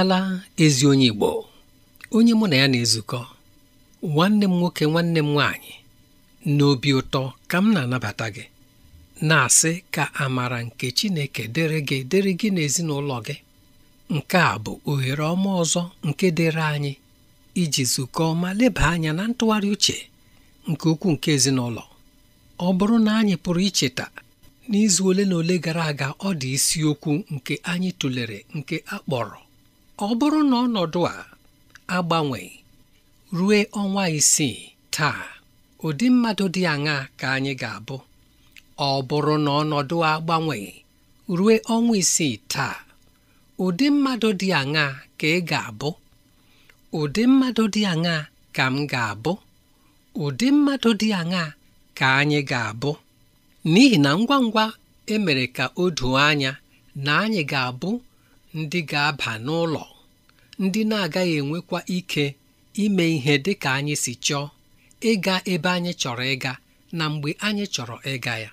abịala ezi onye Igbo onye mụ na ya na-ezukọ nwanne m nwoke nwanne m nwaanyị n'obi ụtọ ka m na-anabata gị na-asị ka amara nke Chineke dịrị gị dịrị gị n'ezinụlọ gị nke a bụ ohere ọma ọzọ nke dịrị anyị iji zukọọ ma leba anya na ntụgharị uche nke ukwuu nke ezinụlọ ọ bụrụ na anyị pụrụ icheta n'izu ole na ole gara aga ọ dị isiokwu nke anyị tụlere nke a kpọrọ ọ bụrụ na ọnọdụ a agbanwe rue ọnwa isii taa ụdị mmadụ dị aṅa ka anyị ga-abụ ọ bụrụ na agbanwe rue ọnwa isii taa ụdị ka m ga-abụ ụdị mmadụ dị aṅa ka anyị ga-abụ n'ihi na ngwa ngwa emere ka o doo anya na anyị ga-abụ ndị ga-aba n'ụlọ ndị na-agaghị enwekwa ike ime ihe dị ka anyị si chọọ ịga ebe anyị chọrọ ịga na mgbe anyị chọrọ ịga ya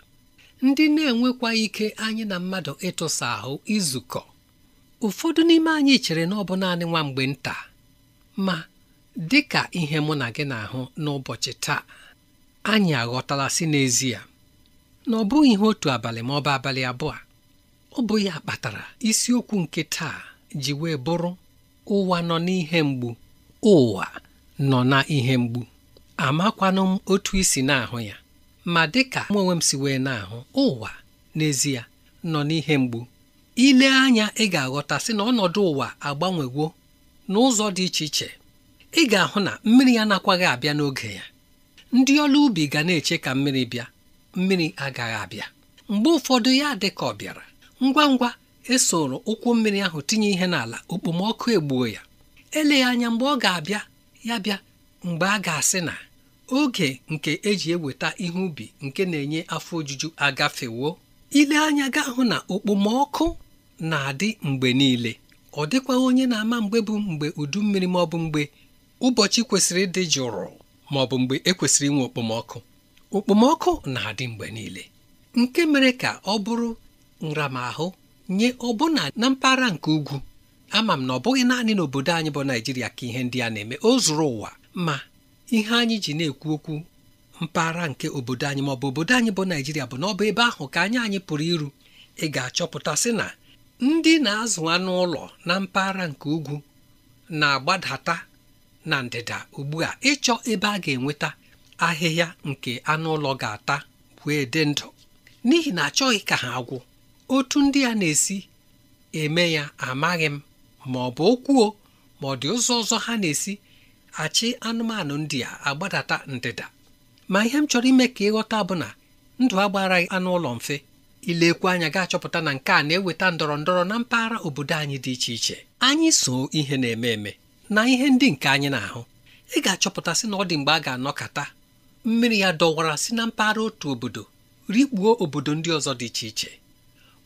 ndị na-enwekwa ike anyị na mmadụ ịtụsa ahụ izukọ ụfọdụ n'ime anyị chere na ọ bụ naanị nwa mgbe nta ma dị ka ihe mụ na gị na-ahụ n'ụbọchị taa anyị aghọtala si n'ezie na ọ bụghị ihe otu abalị ma ọ bụ abalị abụọ ọ bụ ya kpatara isiokwu nke taa ji wee bụrụ ụwa nọ n'ihe mgbu ụwa nọ na ihe mgbu amakwanụ m otu isi na-ahụ ya ma dịka mụ onwe m si wee na-ahụ ụwa n'ezie nọ n'ihe mgbu ile anya ị ga-aghọta sị na ọnọdụ ụwa agbanwewo n'ụzọ dị iche iche ị ga-ahụ na mmiri anakwaghị abịa n'oge ya ndị ọrụ ubi ga na-eche ka mmiri bịa mmiri agaghị abịa mgbe ụfọdụ ya dị ka ọ bịara ngwa ngwa esoro ụkwụ mmiri ahụ tinye ihe n'ala okpomọkụ egbuo ya eleghị anya mgbe ọ ga-abịa ya bịa mgbe a ga-asị na oge nke eji eweta ihe ubi nke na-enye afọ ojuju agafewo ile anya ga hụ na okpomọkụ na-adị mgbe niile ọ dịkwa onye na-ama mgbe bụ mgbe udu mmiri ma ọ bụ mgbe ụbọchị kwesịrị ịdị jụrụ ma ọ bụ mgbe ekwesịrị inwe okpomọkụ okpomọkụ na-adị mgbe niile nke mere ka ọ bụrụ nramahụ nye ọbụna na mpaghara nke ugwu ama m na ọ bụghị naanị n'obodo anyị bụ Naịjirịa ka ihe ndị a na-eme o zuru ụwa ma ihe anyị ji na-ekwu okwu mpaghara nke obodo anyị ma ọ bụ obodo anyị bụ naijiria bụ na ọ bụ ebe ahụ ka anyị anyị pụrụ iru ị ga-achọpụta sị na ndị na-azụ anụ ụlọ na mpaghara nke ugwu na-agbadata na ndịda ugbu a ịchọ ebe a ga-enweta ahịhịa nke anụ ụlọ ga-ata wee dị ndụ n'ihi na achọghị ka ha gwụ otu ndị a na-esi eme ya amaghị m ma ọ bụ okwuo ma ọ dị ụzọ ọzọ ha na-esi achị anụmanụ ndị a agbadata ndịda ma ihe m chọrọ ime ka ịghọta bụ na ndụ agbaraghị anụ ụlọ mfe ilekwu anya ga-achọpụta na nke a na-eweta ndọrọ ndọrọ na mpaghara obodo anyị dị iche iche anyị so ihe na-eme eme na ihe ndị nke anyị na-ahụ ị ga-achọpụta sị na ọ dị mgbe a ga-anọkata mmiri ya dọwara si na mpaghara otu obodo rikpuo obodo ndị ọzọ dị iche iche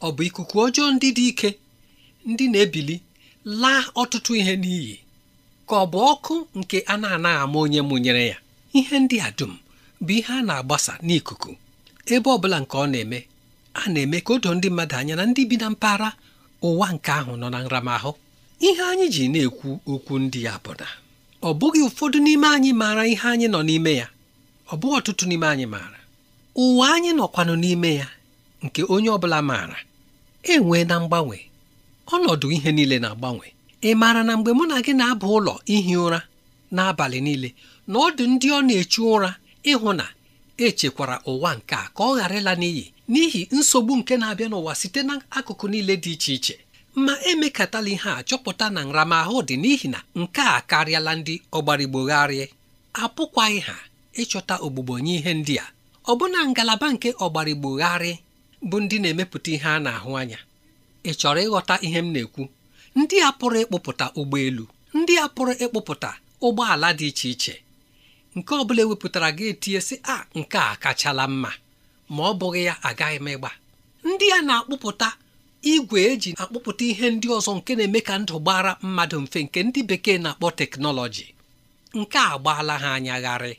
ọ bụ ikuku ọjọọ ndị dị ike ndị na-ebili laa ọtụtụ ihe n'iyi ka ọ bụ ọkụ nke a na-anaghị ama onye mụnyere ya ihe ndị a dum bụ ihe a na-agbasa n'ikuku ebe ọ bụla nke ọ na-eme a na-eme ka o ndị mmadụ anya na ndị bi na mpaghara ụwa nke ahụ nọ na nramahụ ihe anyị ji na-ekwu okwu ndị ya bụ na ọ bụghị ụfọdụ n'ime anyị maara ihe anyị nọ n'ime ya ọ bụghị ọtụtụ n'ime anyị maara ụwa anyị nọkwanụ n'ime ya nke onye ọ bụla maara enwee na mgbanwe ọnọdụ ihe niile na-agbanwe ị maara na mgbe mụ na gị na-aba ụlọ ihi ụra n'abalị niile na ọ dị ndị ọ na-echu ụra ịhụ na echekwara ụwa nke a ka ọ ghara ịla n'iyi n'ihi nsogbu nke na-abịa n'ụwa site n'akụkụ niile dị iche iche ma emekatala ihe a chọpụta na nramahụ dị n'ihi na nke a karịala ndị ọgbarigbogharị apụkwaghị ha ịchọta ogbugbo nye ihe ndị a ọbụna ngalaba nke ọgbarigbogharị bụ ndị na-emepụta ihe a na-ahụ anya ị chọrọ ịghọta ihe m na-ekwu ndị a pụrụ ịkpụpụta ụgbọelu ndị a pụrụ ịkpụpụta ụgbọala dị iche iche nke ọ bụla ewepụtara gị etinye sị a nke a kachala mma ma ọ bụghị ya agaghị m ịgba ndị a na-akpụpụta igwe eji akpụpụta ihe ndị ọzọ nke na-eme ka ndụ gbara mmadụ mfe nke ndị bekee na-akpọ teknọlọji nke a gbaala ha anya gharị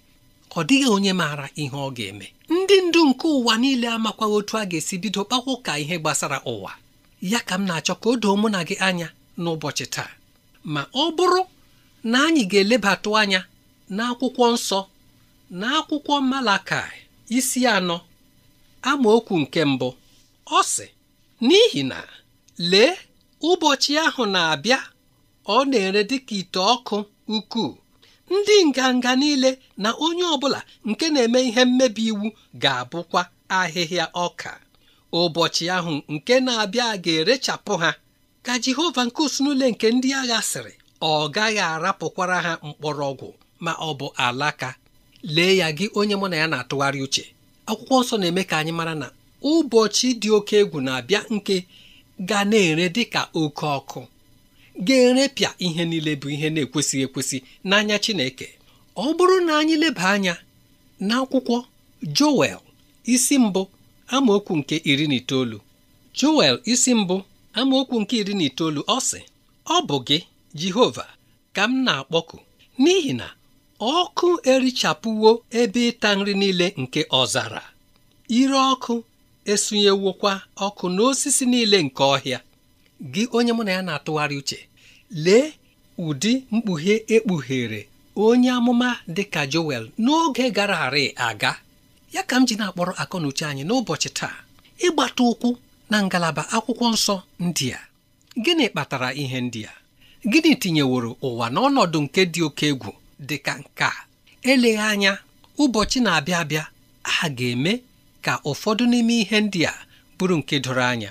ọ dịghị onye maara ihe ọ ga-eme ndị ndu nke ụwa niile amakwa otu a ga-esi bido kpakwa ụka ihe gbasara ụwa ya ka m na-achọ ka o doo mụ na gị anya n'ụbọchị taa ma ọ bụrụ na anyị ga-elebatụ anya n'akwụkwọ nsọ na akwụkwọ Malakai isi anọ amaokwu nke mbụ ọ sị n'ihi na lee ụbọchị ahụ na-abịa ọ na-ere dịka ite ọkụ ukwuu ndị nganga niile na onye ọbụla nke na-eme ihe mmebi iwu ga-abụkwa ahịhịa ọka ụbọchị ahụ nke na-abịa ga-erechapụ ha ka Jehova nke usunule nke ndị agha sịrị ọ gaghị arapụkwara ha mkpọrọgwụ ma ọ bụ alaka lee ya gị onye mụ na ya na-atụgharị uche akwụkwọ nsọ na-eme ka anyị mara na ụbọchị dị oke egwu na-abịa nke ga na-ere dịka oke ọkụ ga-erepịa ihe niile bụ ihe na-ekwesịghị ekwesị n'anya Chineke ọ bụrụ na anyị leba anya n'akwụkwọ Joel isi mbụ amaokwu nke iri na itoolu Joel isi mbụ amaokwu nke iri na itoolu ọ sị ọ bụ gị Jehova ka m na-akpọku n'ihi na ọkụ erichapụwo ebe ịta nri niile nke ọzara ire ọkụ esunyewokwa ọkụ n'osisi niile nke ọhịa gị onye mụ na ya na-atụgharị uche lee ụdị mkpughe ekpughere onye amụma dịka Joel n'oge gara harị aga ya ka m ji na-akpọrọ akọnuche anyị n'ụbọchị taa ịgbata ụkwụ na ngalaba akwụkwọ nsọ ndịa. gịnị kpatara ihe ndịa. gịnị tinyeworo ụwa n'ọnọdụ nke dị oke egwu dịka nke a eleghị anya ụbọchị na-abịa abịa a ga-eme ka ụfọdụ n'ime ihe ndị a bụrụ nke doro anya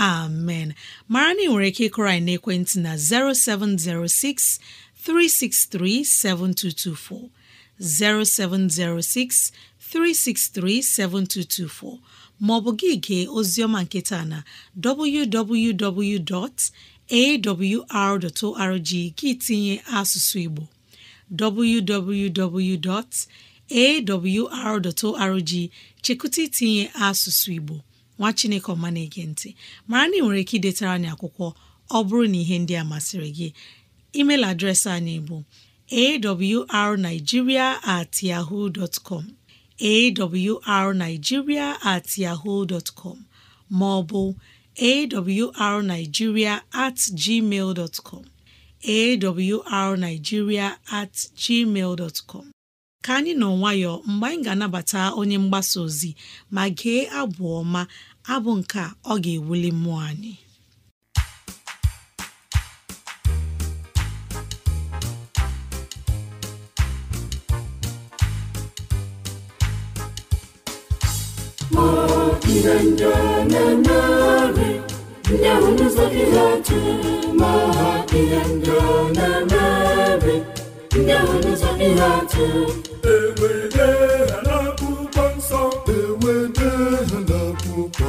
amen mara na ị nwere ike ịkụrọ anyị n'ekwentị na 0706 363 7224 0706 363 7224 maọbụ gị gee oziọma nketa na www.awr.org gị tinye asụsụ Igbo www.awr.org chekụta itinye asụsụ Igbo nwa chineke ọma na-ege ntị mara na ị nwere ike idetara anyị akwụkwọ ọ bụrụ na ihe ndị a masịrị gị email adreesị anyị bụ arigiria at yahoo com at yahoo com ma ọ bụ at gmail dot arigiria at gmail dtcom ka anyị nọ nwayọọ mgbe anyị ga-anabata onye mgbasa ozi ma gee abụ ọma abụ nke a ọ ga-ewuli mmụọ anyị ihe ndị na ndị ahụ n'ụzọ gị ha tụrụ ma ha ihe ndị na-emegharị ndị ahụ n'ụzọ gị ha tụrụ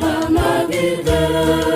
na-agụda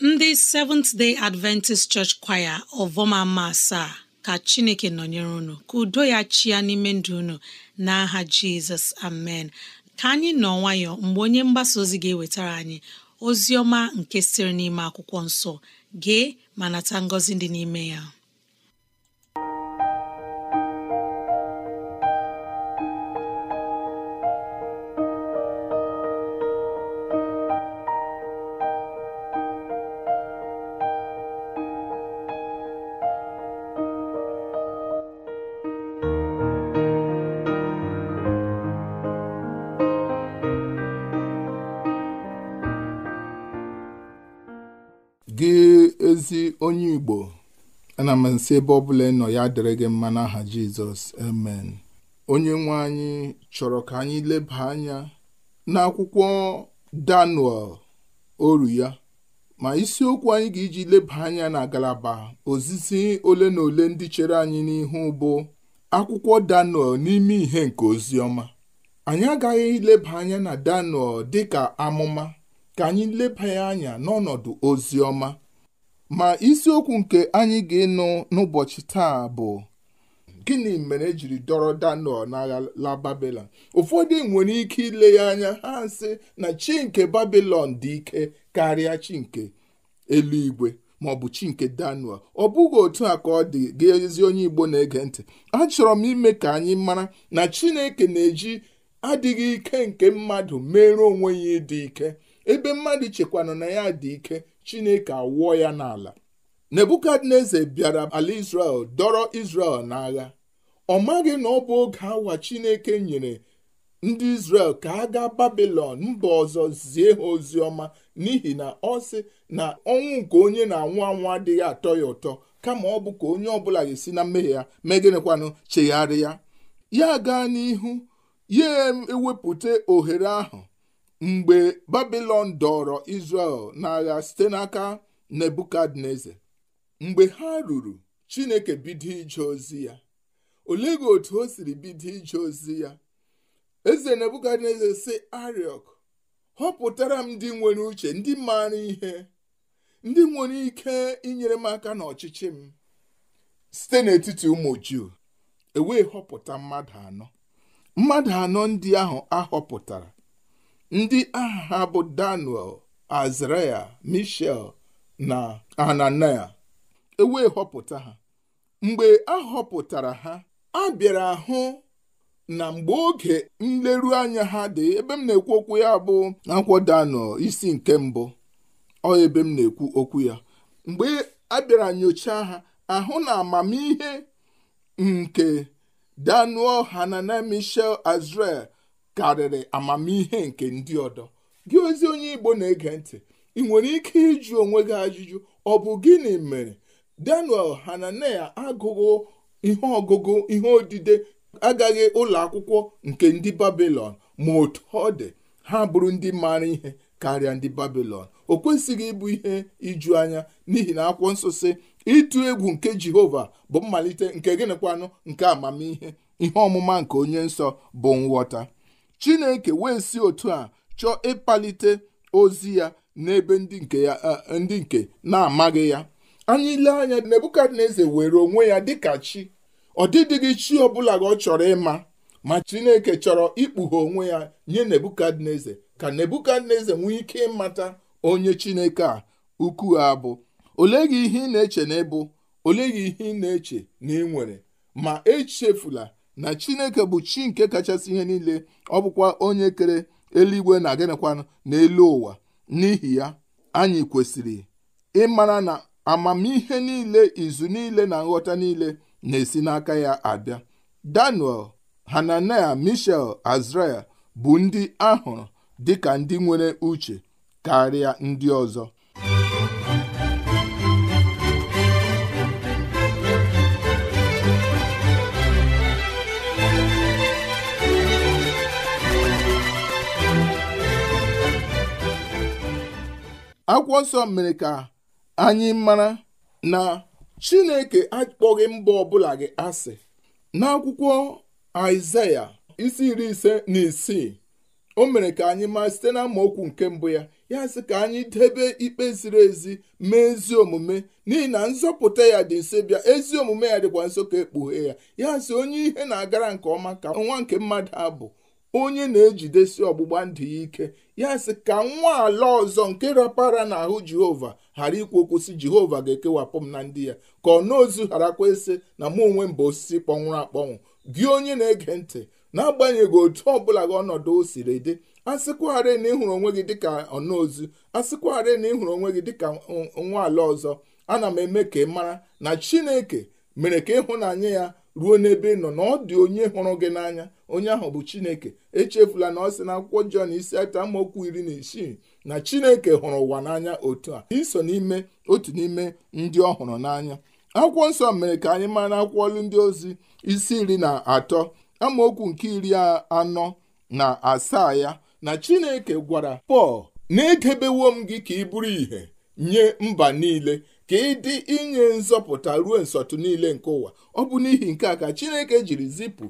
ndị Seventh Day Adventist Church Choir ọvọmama asaa ka Chineke nọnyere unu ka udo ya chia n'ime ndụ unu n'aha Jizọs amen ka anyị nọ nwayọọ mgbe onye mgbasa ozi ga-ewetara anyị ozi ọma nke sịrị n'ime akwụkwọ nsọ gee ma nata ngọzi dị n'ime ya Igbo ana m nsị ebe ọbụla ị nọ ya dịrị gị mma n'aha Jizọs amen onye nwe anyị chọrọ ka anyị leba anya n'akwụkwọ Daniel oru ya ma isiokwu anyị ga-eji leba anya na ngalaba ozizi ole na ole ndị chere anyị n'ihu bụ akwụkwọ Daniel n'ime ihe nke ozi anyị agaghị leba anya na Daniel dịka amụma ka anyị leba anya n'ọnọdụ ozi ọma ma isiokwu nke anyị ga-ịnụ n'ụbọchị taa bụ gịnị mere ejiri dọrọ Daniel n'ala Babilọn ụfọdụ nwere ike ile ya anya ha sị na chi nke babilon dị ike karịa chi nke eluigwe ma ọ bụ chi nke Daniel ọ bụghị otu a ka ọ dị gị ezi onye Igbo na-ege ntị achọrọ m ime ka anyị mara na Chineke na-eji adịghị ike nke mmadụ mere onwe ya ịdị ike ebe mmadụ chekwana na ya dị ike chineke awụọ ya n'ala nebukadneza bịara ala israel dọrọ israel n'agha ọ maghị na ọ bụ oge awa chineke nyere ndị israel ka a gaa babilon mba ọzọ zie ha ozi ọma n'ihi na ọ sị na ọnwụ nke onye na-anwụ anwụ adịghị atọ ya ụtọ kama ọ bụ ka onye ọbụla ga-esi na mmehie ya megịnịkwanụ chegharị ya ya gaa n'ihu ya ewepụta ohere ahụ mgbe babilon dọrọ israel n'agha site n'aka nebukadneza mgbe ha ruru chineke bido ije ozi ya olee gị otu o siri bido ije ozi ya eze nebukadneza si ariok họpụtara m ndị nwere uche ndị maara ihe ndị nwere ike inyere m aka n'ọchịchị m site n'etiti ụmụ juu ewee họpụta mmadụ anọ mmadụ anọ ndị ahụ ahọpụtara ndị aha bụ daniel azraya michel na ananaya ewee họpụta ha mgbe a họpụtara ha a bịara hụ na mgbe oge nleru anya ha dị ebe m na-ekwu okwu ya bụ akwụkwọ daniel isi nke mbụ ọ ebe m na-ekwu okwu ya mgbe a bịara nyochaa ha ahụ na amamihe nke daniel hananel michel azrel karịrị amamihe nke ndị ọdọ gị ozi onye Igbo na-ege ntị ị nwere ike ịjụ onwe gị ajụjụ ọ bụ gịnị mere Daniel Hananel agụghụ ihe ọgụgụ ihe odide agaghị ụlọ akwụkwọ nke ndị babilon ma otu ọ dị ha bụrụ ndị maara ihe karịa ndị babilon o kwesịghị ịbụ ihe iju anya n'ihi na akwụkwọ nsọ si ịtụ egwu nke Jehova bụ mmalite nke gịnịkwanụ nke amamihe ihe ọmụma nke onye nsọ bụ nghọta chineke wee si otu a chọọ ịkpalite ozi ya n'ebe ndị nke ya ndị nke na-amaghị ya anyị ile anya nebukadneza were onwe ya dịka chi ọ dịdịghị chi ọbụla ka ọ chọrọ ịma ma chineke chọrọ ikpughe onwe ya nye nebukadneza ka nebukadneza nwee ike ịmata onye chineke a ukwu a bụ olee gị ihe ị na-eche na ịbụ olee gị ihe ị na-eche na ị nwere ma echefula na chineke bụ chi nke kachasị ihe niile ọ bụkwa onye kere eluigwe na gịnịkwanụ n'elu ụwa n'ihi ya anyị kwesịrị ịmara na amamihe niile izu niile na nghọta niile na-esi n'aka ya abịa daniel hananel mishel azrael bụ ndị ahụrụ dịka ndị nwere uche karịa ndị ọzọ akwụkwọ nsọ mere ka anyị mara na chineke akpọghị mba ọbụla gị asị n'akwụkwọ aịzaya isi iri ise na isii o mere ka anyị maa site na okwu nke mbụ ya ya sị ka anyị debe ikpe ziri ezi mee ezi omume n'ihi na nzọpụta ya dị nso bịa ezi omume ya dịkwa nso ka ekpughe ya ya sị onye ihe na-agara nke ọma ka nwa nke mmadụ abụ onye na-ejidesi ọgbụgba ndụ ya ike ya sị ka nwa ala ọzọ nke rapara n'ahụ jehova ghara ikwu okwu sị jehova ga-ekewapụ m na ndị ya ka ọ na ozu gharakwa ịsị na mụ onwe m bụ osisi kpọnwụrụ akpọnwụ gị onye na-ege ntị n'agbanyeghị otu ọbụla gị ọnọdụ o siri dị asịkwagharị na ịhụrụ onwe gị dịka ọnaozu asịkwagharị na ịhụrụ onwe gị dịka nwa ala ọzọ ana m eme ka ị mara na chineke mere ka ịhụnanya ya ruo n'ebe ị nọ na ọ dị onye hụrụ gị n'anya onye ahụ bụ chineke echefula na ọ sị na akwụkwọ jọn isi atọ amaokwu iri na isii na chineke hụrụ ụwa n'anya otu a iso n'ime otu n'ime ndị ọ hụrụ n'anya akwụkwọ nsọ mere ka anyị mara akwụkwọ ọlụ ndị ozi isi iri na atọ amaokwu nke iri anọ na asaa ya na chineke gwara pọl na-edebewo m gị ka ị bụrụ ìhè nye mba niile ka ịdị inye nzọpụta ruo nsọtụ niile nke ụwa ọ bụ n'ihi nke a ka Chineke jiri zipụ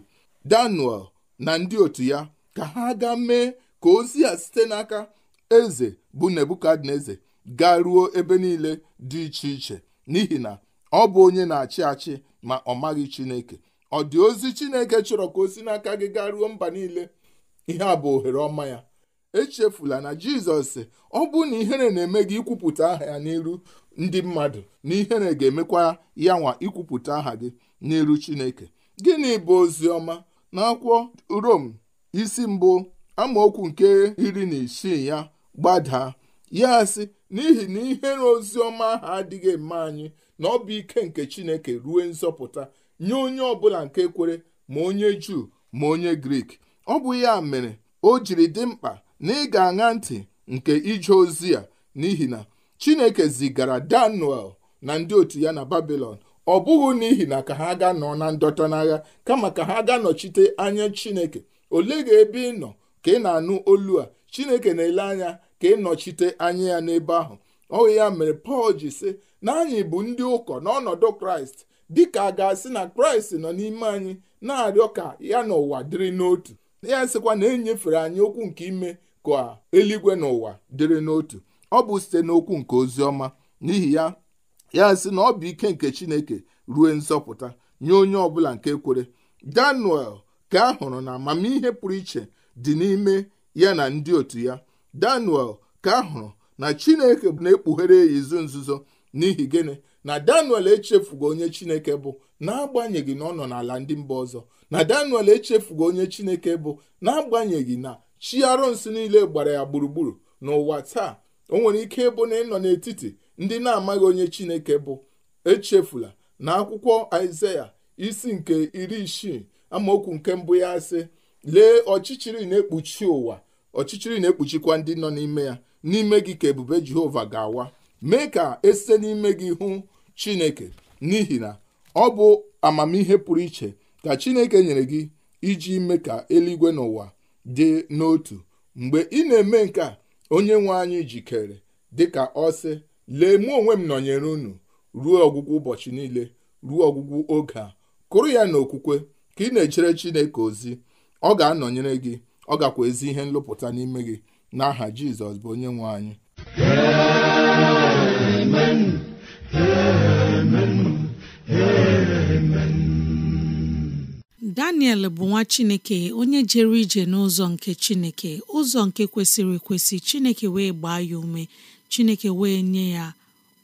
Daniel na ndị otu ya ka ha gaa mee ka ozi a site n'aka eze bụ Nebukadneza gaa ruo ebe niile dị iche iche n'ihi na ọ bụ onye na-achị achị ma ọ maghị Chineke ọ dị ozi Chineke chọrọ ka o si n'aka gị gaa ruo mba niile ihe a bụ ohere ọma ya echefula na Jizọs ọ bụ na ihere na-eme gị ikwupụta aha ya n'iru ndị mmadụ na ihere ga-emekwa ya nwa ikwupụta aha gị n'iru Chineke gịnị bụ ozi ọma na-akwụkwọ Rom isi mbụ amaokwu nke iri na isii ya gbadaa ya sị n'ihi na ihere ozi ọma ahụ adịghị eme anyị na ọ bụ ike nke Chineke ruo nzọpụta nye onye ọbụla nke kwere ma onye Juu ma onye Grik ọ bụ ya mere o jiri dị mkpa na ị ga-aṅa ntị nke ije ozi a n'ihi na chineke zigara daniel na ndị otu ya na babilon ọ bụghị n'ihi na ka ha ga nọ na ndọta n'agha kama ka ha ga nọchite anya chineke ole ga ebe ị nọ ka ị na-anụ olu a chineke na-ele anya ka ị nọchite anya ya n'ebe ahụ ọ ya mere pọl ji sị na anyị bụ ndị ụkọ n'ọnọdụ kraịst dịka a ga-asị na kraịst nọ n'ime anyị na-arịọ ka ya n'ụwa dịrị n'otu ya sịkwa na e nyefere anyị okwu nke ime ka eluigwe n'ụwa dịrị n'otu ọ bụ site n'okwu nke ozi ọma n'ihi ya ya sị na ọ bụ ike nke chineke ruo nzọpụta nye onye ọbụla nke kwere daniel ka a hụrụ na amamihe pụrụ iche dị n'ime ya na ndị otu ya daniel ka a hụrụ na chineke na-ekpughere ya izu nzuzo n'ihi gịnị na daniel echefugo onye chineke bụ n'agbanyeghị na ọ nọ n'ala ndị mba ọzọ na daniel echefugo onye chineke bụ n'agbanyeghị na chi arụnsị niile gbara ya gburugburu n'ụwa taa o nwere ike ịbụ na ịnọ n'etiti ndị na-amaghị onye chineke bụ echefula na akwụkwọ aịzaya isi nke iri isii amaokwu nke mbụ ya sị lee ọchịchịrị na-ekpuchi ụwa ọchịchịrị na-ekpuchikwa ndị nọ n'ime ya n'ime gị ka ebube jehova ga-awa mee ka esite n'ime gị hụ chineke n'ihi na ọ bụ amamihe pụrụ iche ka chineke nyere gị iji mee ka eluigwe n'ụwa dị n'otu mgbe ị na-eme nke a onye nwe anyị jikere dịka ọsị lee mụ onwe m nọnyere unu ruo ọgwụgwụ ụbọchị niile ruo ọgwụgwụ oge a kụrụ ya n'okwukwe ka ị na-echere Chineke ozi ọ ga-anọnyere gị ọ gakwa ezi ihe nlụpụta n'ime gị n'aha Jizọs bụ onye nwe anyị Amen. Amen. Amen. daniel bụ nwa chineke onye jere ije n'ụzọ nke chineke ụzọ nke kwesịrị ekwesị chineke wee gbaa ya ume chineke wee nye ya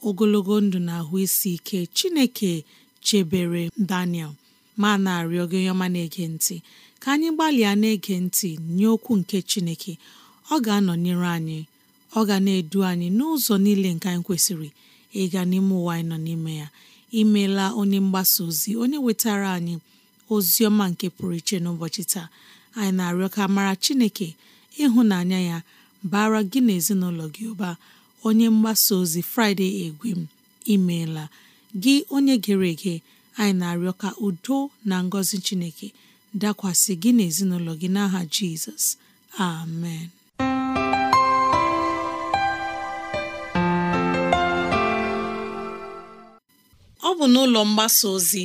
ogologo ndụ na ahụ isi ike chineke chebere daniel ma na-arịọ gị ọma na-ege ntị ka anyị gbalịa na-ege ntị nye okwu nke chineke ọ ga-anọnyere anyị ọ ga na-edu anyị n'ụzọ niile nke anyị kwesịrị ịga n'ime ụwa anyị nọ n'ime ya imeela onye mgbasa ozi onye wetara anyị ozi ọma nke pụrụ iche n'ụbọchị taa anyị na-arịọ ka mara Chineke ịhụnanya ya bara gị na ezinụlọ gị ụba onye mgbasa ozi Fraịde Egwem imeela gị onye gere ege anyị na-arịọ ka udo na ngọzi Chineke dakwasị gị na ezinụlọ gị n'aha Jizọs amen ọ bụ n'ụlọ mgbasa ozi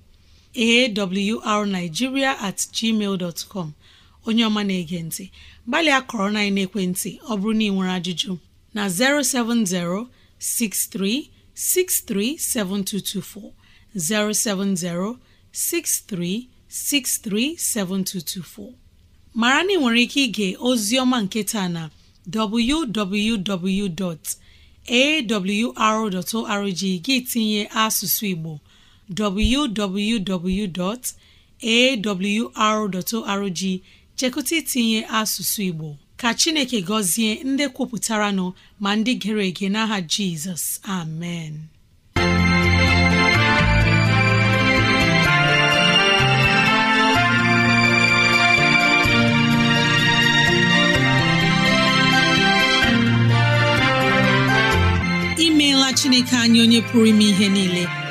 awrnigeria at gmail com onye ọma na-ege ntị gbalịa kọrọ na ekwentị ọ bụrụ na ị nwere ajụjụ na 070 6363 7224 070 7224 mara na ị nwere ike ige ozi ọma nke na www.awr.org gị tinye asụsụ Igbo www.awr.org chekụta itinye asụsụ Igbo ka Chineke gọzie ndị kwupụtara nọ ma ndị gere ege n'aha Jizọs amen imeela Chineke anyị onye pụrụ ime ihe niile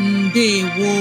ndewo